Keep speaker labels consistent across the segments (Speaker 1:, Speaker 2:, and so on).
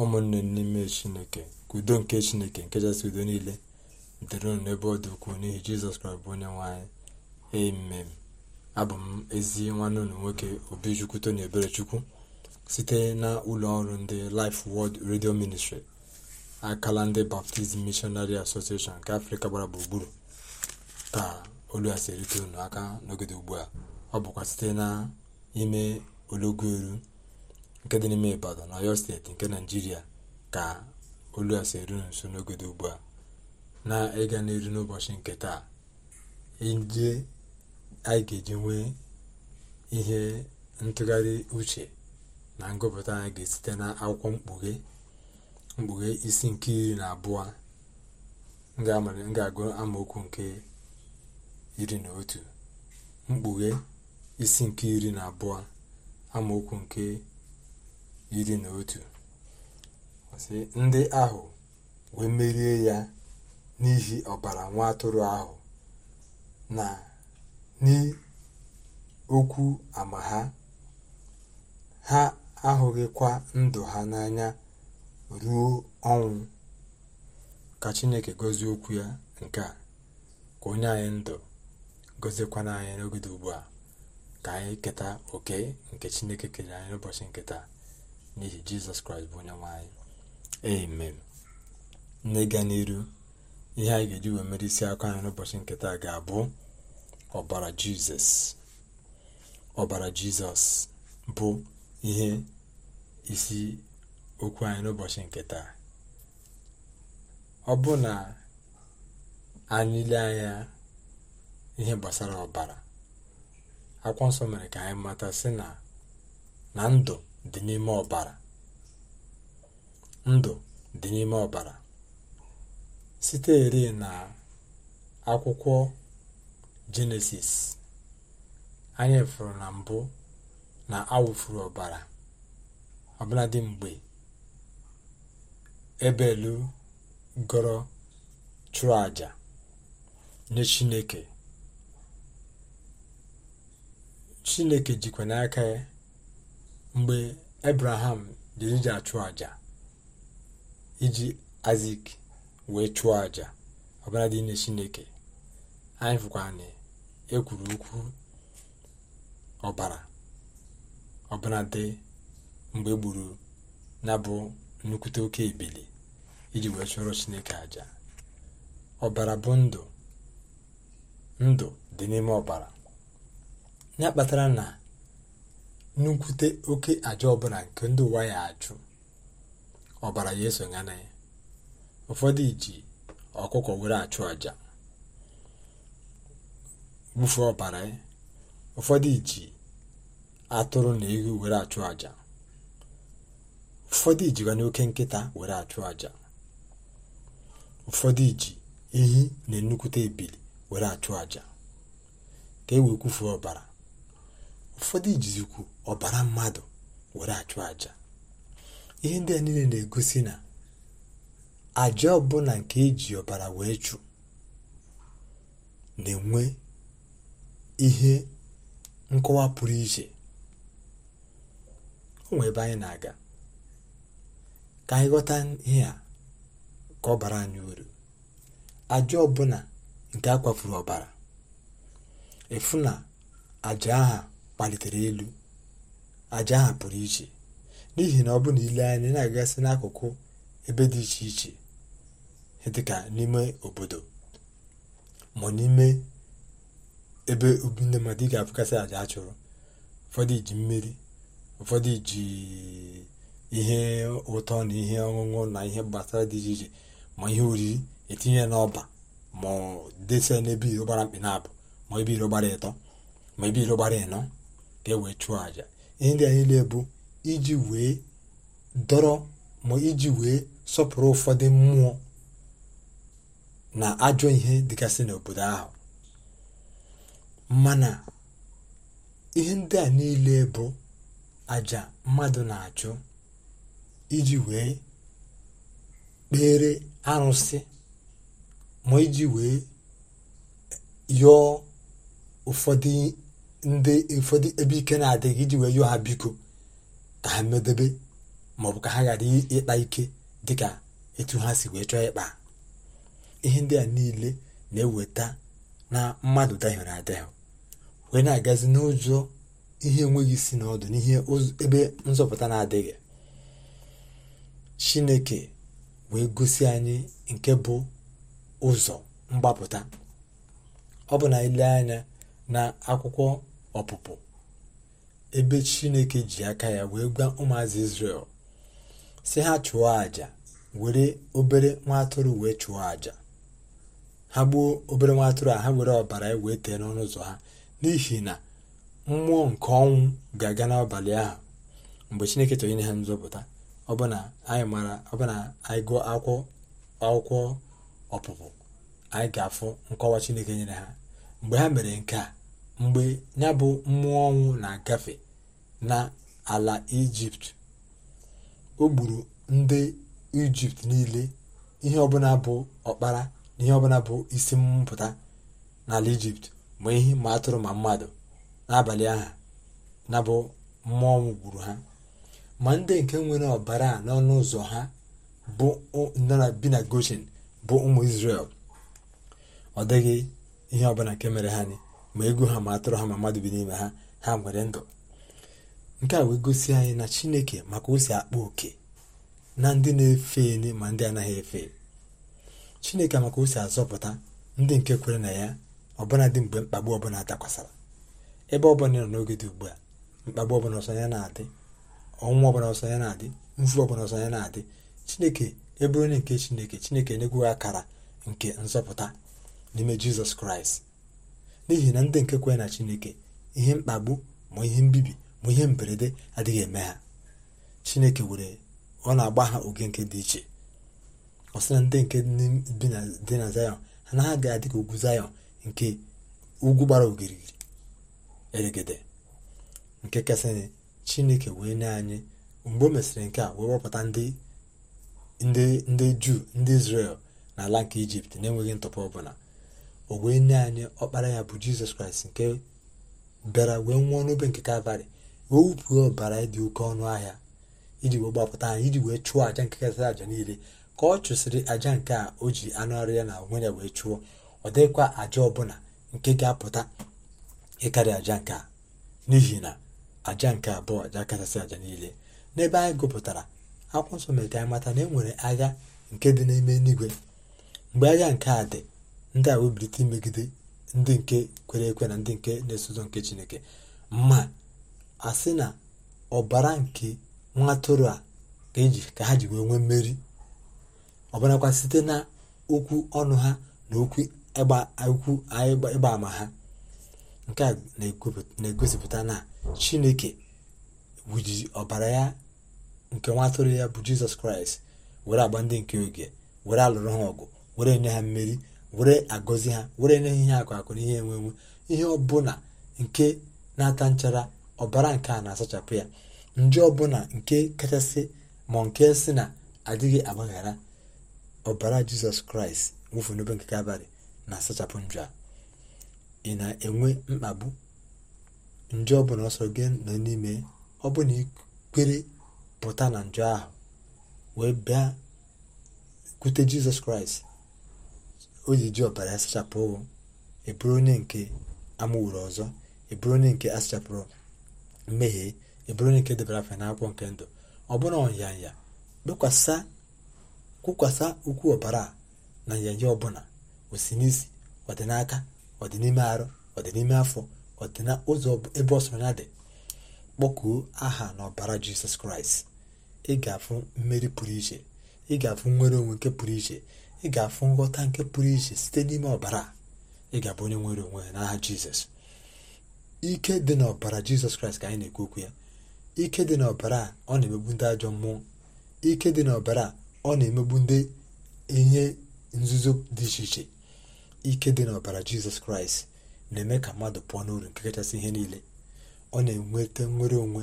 Speaker 1: ụmụnne n'ime chineke ka udo nke chineke nke kachasị udo niile dịrị ụnụ n'ebe ọ dị ukwuu n'ihi jizọs kraịst bụ onye nwanyị amen abụ m ezi nwanne ụlọ nwoke obichukwu tony eberechukwu site na ụlọ ọrụ ndị Life Word Radio Ministry akala ndị baptizm mishonari Association nke afrịka gbara gburugburu ka olu a si erite unu aka n'ogede ugbu a ọ bụkwa site na ime olọgwuelu nke dị n'ime ibadan na steeti nke naijiria ka olu a si eru nso n'oge dị ugbu a na ịga n'eru n'ụbọchị nke taa ije anyị ga-eji nwee ihe ntụgharị uche na ngụpụta anyị ga-esite na akwụkwọ mkpughe mkpughe isi nke iri na abụọ ga-agụ amaokwu nke iri na otu mkpughe isi nke iri na abụọ amaokwu nke iri na otu ndị ahụ wee merie ya n'ihi ọbara nwa atụrụ ahụ na n'okwu ama ha ha ahụghịkwa ndụ ha n'anya ruo ọnwụ ka chineke gozie okwu ya nke a ka onye anyị ndụ gozikwa n'anya n'ogide ugbu a ka anyị keta oke nke chineke kere anyị n'ụbọchị nke taa n'ihi jizọs kraịst bụ onye nwe anyị amen n'ịga n'iru ihe anyị ga-eji wee mere isi akụ anyị n'ụbọchị nketa ga-abụ ọbara jizọs ọbara jizọs bụ ihe isi okwu anyị n'ụbọchị nketa ọ bụ na anyị lee anya ihe gbasara ọbara akwụkwọ nsọ mere ka anyị mata sị na na ndụ dị ọbara ndụ dị n'ime ọbara site eri na akwụkwọ jenesis anya furu na mbụ na awụfuru ọbara ọbụladị mgbe ebelu gọrọ chụrụ aja nye chineke chineke jikwa n'aka ya mgbe ebraham jiri ji achụ àjà iji azik wee chụọ àjà ọbara dị nye chineke anyị fụkwa na ekwuru okwu ọbara ọbara dị mgbe e gburu na bụ nnukwute oke ebili iji wee chụọrọ chineke àjà ọbara bụ ndụ ndụ dị n'ime ọbara ya kpatara na nnukwute oke aja ọbụla nke ndị ụwa ya achụ ọbara ya esonye na ya ụfọdụ iji ọkụkọ were achụ aja bufee ọbara ya ụfọdụ iji atụrụ na ehi were achụ aja ụfọdụ ijikwa n'oke nkịta were achụ aja ụfọdụ iji ehi na nnukwute ebili were achụ aja ka e wee kwufuo ọbara ụfọdụ ijizikwu ọbara mmadụ were achụ aja ihe ndị a niile na-egosi na aja ọbụla nke eji ọbara wee chụ na-enwe ihe nkọwa pụrụ iche o ebe anyị na-aga ka anyị ghọta ihe a ka ọbara anyị uru aja ọbụla nke a kwafuru ọbara efu na aja aha kpalitere elu àjà ahụ pụrụ iche n'ihi na ọ bụ na ile anya na-agagasị n'akụkụ ebe dị iche iche dịka n'ime obodo ma n'ime ebe obi ndị mmadụ ị ga-abụgasị àjà a chụrụ ụfọdụ ji mmiri ụfọdụ ji ihe ụtọ na ihe ọṅụṅụ na ihe gbasara dị iche iche ma ihe oriri etinye n'ọba ma desia n'ebe iro gbara mkpị na abụ ma ebe iro gbara ịtọ ma ebe iro gbara ịnọ ka e wee chụọ àjà ihe ndị a niile bụ iji wee dọrọ ma iji wee sọpụrụ ụfọdụ mmụọ na ajọ ihe dịgasị n'obodo ahụ mana ihe ndị a niile bụ aja mmadụ na-achụ iji wee kpere arụsị ma iji wee yọọ ụfọdụ ndị ụfọdụ ebe ike na-adịghị iji wee yụọ ha biko ka ha medobe maọbụ ka ha ghara ịkpa ike dịka etu ha si wee chọọ ịkpa ihe ndị a niile na-eweta na mmadụ dahiere adịghị wee na-agazi n'ụzọ ihe enweghị isi n'ọdụ n'ihe ebe nzọpụta na-adịghị chineke wee gosi anyị nke bụ ụzọ mgbapụta ọ bụ na ile anya na akwụkwọ ọpụpụ ebe chineke ji aka ya wee gwa ụmụazị israel si ha chụọ àjà were obere nwa atụrụ wee chụọ àjà ha gbuo obere nwa atụrụ a ha were ọbara ya wee tee n'ọnụ ụzọ ha n'ihi na mmụọ nke ọnwụ ga-aga n'abalị ahụ mgbe chineke chọrọ ha nzọpụta ọbụna anyị mara ọbụna anyị gụọ akwụkwọ akwụkwọ ọpụpụ anyị ga-afụ nkọwa chineke nyere ha mgbe ha mere nke a mgbe ya bụ mmụọ ọnwụ na-agafe n'ala ijipt o gburu ndị ijipt niile ihe ọbụla bụ ọkpara na ihe ọbụla bụ isi mpụta n'ala ijipt ma ihe ma atụrụ ma mmadụ n'abalị aha na bụ mmụọ ọnwụ gburu ha ma ndị nke nwere ọbara a n'ọnụ ụzọ ha bụ bi na goshen bụ ụmụ israel ọ dịghị ihe ọbụla nke mere ha ni ma egwu ha ma atụrụ ha ma mmadụ bi n'ime ha ha nwere ndụ nke a wee gosi anyị na chineke maka o si akpa oke na ndị na-efe ele ma ndị anaghị efe chineke maka o si azọpụta ndị nke kwere na ya ọbụla dị mgbe mkpagbu ọbụla dakwasara ebe ọbụla nọ n'oge dị ugbu a mkpagbu ọbụla ọsọ ya na-adị ọnwụ ọbụla ọsọ ya na-adị mfu ọbụla ọsọ ya na-adị chineke eburu onye nke chineke chineke na-egwughị akara nke nzọpụta n'ime jizọs kraịst n'ihi na ndị nke kwere na chineke ihe mkpagbu ma ihe mbibi ma ihe mberede adịghị eme ha chineke were ọ na-agba ha oge nke dị iche ọ na ndị nke dị na zayọn ha na ha ga-adị ka ugwu zayọn nke ugwu gbara ogirigiri eregede nke kesịrị chineke wee nye anyị mgbe o mesịrị nke a wee wepụta ndị juu ndị izrel n'ala nke ijipt na-enweghị ntụpọ ọbụla o wee nye anyị ọkpara ya bụ jizọs kraịst nke bịara wee nwụọ n'obe nke kalvarị wee wupụo ọbara dị oke ọnụ ahịa iji wee gbapụta anyị iji wee chụọ aja nke kasịrị aja niile ka ọ chụsịrị aja nke a o ji anụ ya na onwe ya wee chụọ ọ dịghịkwa aja ọbụla nke ga-apụta ịkarị aja nke a n'ihi na aja nke abụọ aja kachasị aja niile n'ebe anyị gụpụtara akwụkwọ nsọ mere ka anyị mata na e nwere agha nke dị n'ime eluigwe mgbe agha nke a dị ndị a webilite imegide ndị nke kwere ekwe na ndị nke na-eso nke chineke ma a sị na ọbara nke nwa a eji ka ha ji wee nwee mmeri ọbarakwa site na okwu ọnụ ha na okwu ịgba ama ha nke a na-egosipụta na chineke wuji ọbara ya nke nwa ya bụ jizọs kraịst were agba ndị nke oge were alụrụ ha ọgụ were enye ha mmeri were agọzi ha were na ihe akụ akụ na ihe enwe enwe ihe ọbụla nke na-ata nchara ọbara nke a na-asachapụ ya nje ọbụla nke kachasị ma nke si na adịghị agbaghara ọbara jizọs kraịst nwụfu n'obe nke abalị na-asachapụ njọ a ị na-enwe mkpagbu nje ọbụla ọsọ gị nọ n'ime ọ bụ na ikwere pụta na njọ ahụ wee bịa kwute jizọs kraịst o ji ji ọbara asachapụ eburu onye nke amụwụrụ ọzọ eburu onye nke asachapụrụ mmehie eburu onye nke debara afa n'akwụkwọ nke ndụ ọ bụrụ ọnyanya bekwasa kwụkwasa ukwu ọbara na nyanya ọbụla osi n'isi ọ n'aka n'ime arụ ọdịnime n'ime afọ ọ dị ụzọ ebe ọsọnya dị kpọkuo aha na ọbara jisọs kraịst ị ga-afụ mmeri pụrụ iche ị ga-afụ nnwere onwe nke pụrụ iche ị ga-afụ nghọta nke pụrụ iche site n'ime ọbara ị ga-abụ onye nwere onwe ya n'aha jizọs ike dị n'ọbara jizọs kraịst ka anyị na-ekwu okwu ya ike dị n'ọbara ọ na-emegbu ndị ajọ mmụọ ike dị n'ọbara ọ na-emegbu ndị ihe nzuzo dị iche iche ike dị n'ọbara jizọs kraịst na-eme ka mmadụ pụọ n'uru nke kachasị ihe niile ọ na-enweta nwere onwe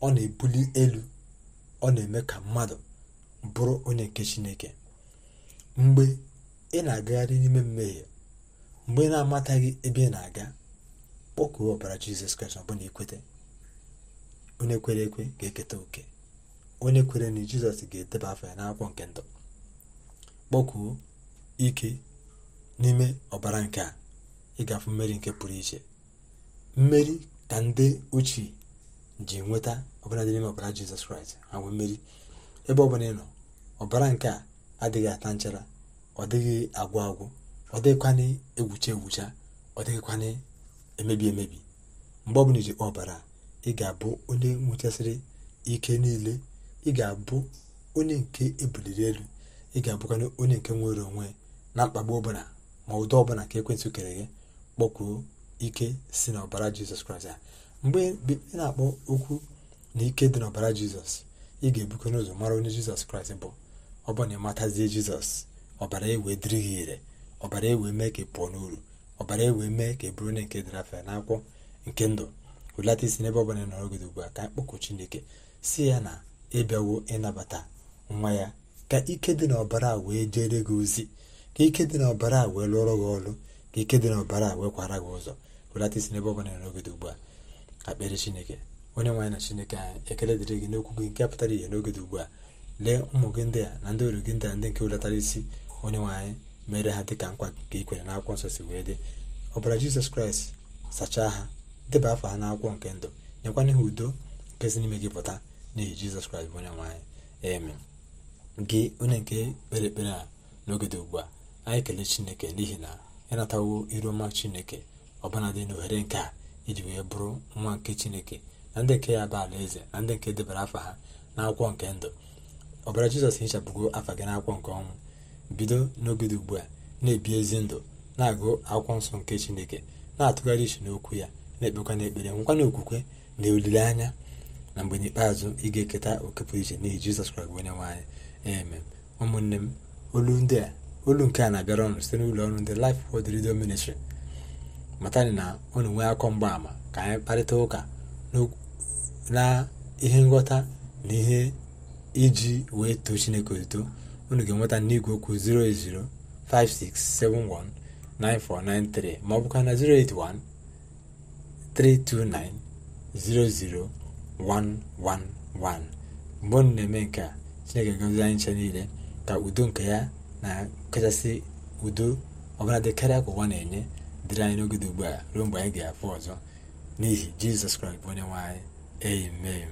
Speaker 1: ọ na-ebuli elu ọ na-eme ka mmadụ bụrụ onye nke chineke mgbe ị na-agagharị n'ime mmehie mgbe ị na-amataghị ebe ị na-aga kpọkuo ọbara jizọs kraịst ọbụna ikwete onye kwere ekwe ga-eketa oke onye kwere na jizọs ga-edeba afọ ya n'akwụkwọ nke ndụ kpọkuo ike n'ime ọbara nke a afụ mmeri nke pụrụ iche mmeri ka ndị ochie ji nweta ọbara dị n'ime ọbara jizọs kraịst ha nwee mmeri ebe ọ bụla ị nọ ọbara nke a adịghị ata nchara ọ dịghị agwụ agwụ ọ dịghịkwana egwucha egwucha ọ dịghịkwana emebi emebi mgbe ọbụla iji ọbara ị ga-abụ onye nwechasịrị ike niile ị ga-abụ onye nke ebuliri elu ị ga-abụkwana onye nke nwere onwe na mkpagbu ọbụla ma ụdọ ọbụla ka ekwentị kere gị kpọkwuo ike si n'ọbara jizọs kraịst a mgbe ị na-akpọ okwu na ike dị n'ọbara jizọs ị ga-ebukọ n'ụzọ mara onye jizọs kraịst bụ ọ bụ na ịmatazie jizọs ọbara ewe dịrị gị ire ọbara ewe mee ka ị pụọ n'uru ọbara ewe mee ka ị bụrụ onye nke dịrafe n'akwụkwọ nke ndụ wulata isi n'ebe ọbụla ị gị ugbu a ka mkpọkụ chineke si ya na ịbịawo ịnabata nwa ya ka ike dị n'ọbara wee jere gị ozi ka ike dị n'ọbara wee lụọrọ gị ọrụ ka ike dị n'ọbara wee kwara gị ụzọ wulata isi n'ebe ọbụla ị gị ugbu a akpere chineke onye nwaanyị na chineke anyị ekele dịrị gị n'okwu gị nke pụtara ihe n'oge ugbu a lee ụmụ gị ndị a na ndị oru gị ndị a ndị nke oletara isi onye nwe anyị mere ha dịka nkwa nke ikwere na akwụkwọ nsọ si wee dị ọbara jizọs kraịst sachaa ha deba afọ ha akwụkwọ nke ndụ nyekwana ihe udo nke si n'ime gị pụta n'ihi jizọs kraịst bụ onye nwe eme gị onye nke kpere ekpere a n'oge dị ugbu a anyị kelee chineke n'ihi na ịnatawo iru ọma chineke ọbụna dị n'ohere nke a iji wee bụrụ nwa nke chineke na ndị nke ya bụ ala eze na ndị nke debara afọ ha akwụkwọ nke ndụ ọbara jizọs hichapụgo afa gị n'akwụkwọ nke ọnwụ bido n'oge dị ugbu a na-ebi ezi ndụ na-agụ akwụkwọ nsọ nke chineke na-atụgharị iche n'okwu ya na-ekpekwa n'ekpere nwekwana okwukwe na olileanya na mgbe n'ikpeazụ ị ga-eketa oke pụrụ iche n'ihi jizọs kwara gị onye nwaanyị anyị eme ụmụnne m olu ndị a olu nke a na-abịara ọnụ site n'ụlọ ọrụ ndị Life Word Radio Ministry matani na unu nwee akọ mgbaama ka anyị kparịta ụka na ihe nghọta na ihe iji wee too chineke eto unu ga-enweta n'igwe okwu 08056719493 ma ọ bụkwa na 08132900111 mgbe unu na-eme nke a chineke gozie anyị nche niile ka udo nke ya na kachasị udo ọbụla dị karịa ka ụwa na-enye dịrị anyị n'oge dị ugbu a ruo mgbe anyị ga-afụ ọzọ n'ihi jizọs kraịst bụ onye nwe anyị amen